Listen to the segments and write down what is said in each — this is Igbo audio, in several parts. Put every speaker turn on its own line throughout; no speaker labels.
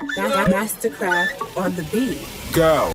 Mastercraft on the beat. Go.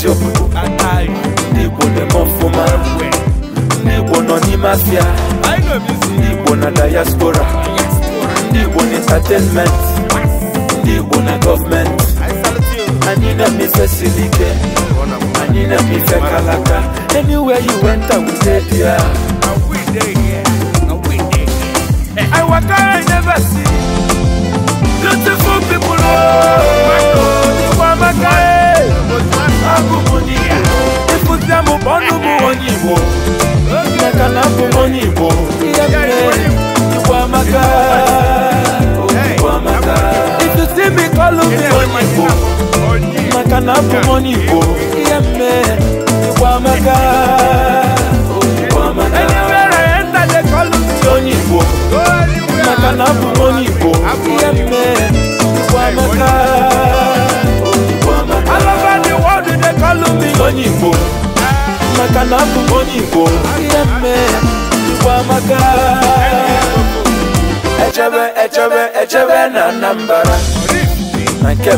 I know dem ọfụma ndị nọ na diaspora entertainment ndị na kalaka anywhere you went I will be there I eh, waka I never see beautiful people oh. i onye Igbo nneka na abụ onye Igbo ihe mere Igbo amaka Igbo amaka ịtụsi m ịkọlụ m onye Igbo maka na abụ igbo nne mme echebe echebe na Anambra na nke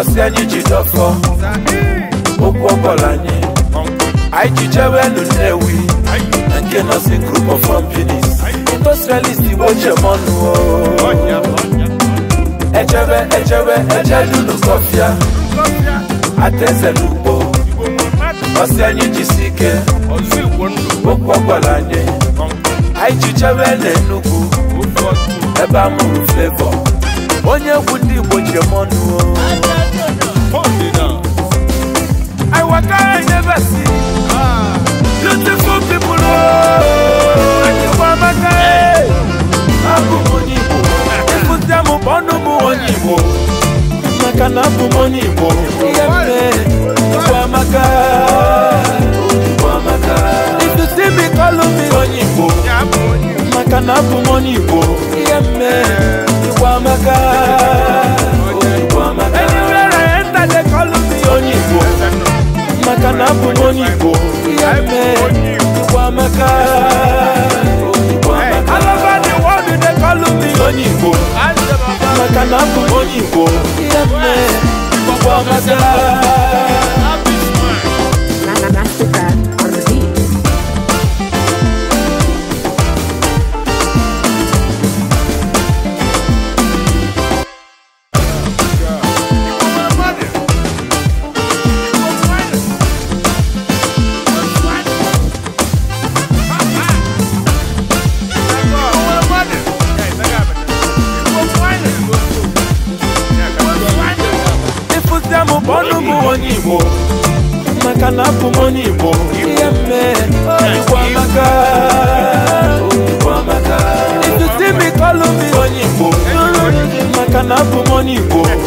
ọsị anyị ji dọfọ okwu ọbọla anyị anyị ji group of companies industrialist igbo chemọnụ echebe echebe ọsẹ anyị jisi ike okwu ọgwara anyị anyị jichebe n'Enugu onye egwu ndị Igbo ji m ọnụ I wakara nyebe si beautiful people anyịkwa amaka abụ m onye Igbo ịfụzie m ọnụ m onye Igbo maka na abụ m onye Igbo ihe m abụmọnụ igbo ihe mme igbo amaka onye igbo maka na abụ m onye igbo ihe mme igbo All over the world they call me onye igbo maka na abụ m onye igbo ihe mme abụ onye igbo maka na abụ m onye igbo ihe mere igbo amaka if you see me call me Money, igbo maka na abụ m onye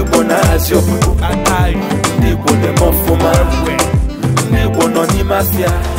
ndị Igbo na-azị ọpụpụ ndị Igbo dị m ọfụma ndị Igbo nọ n'ime afịa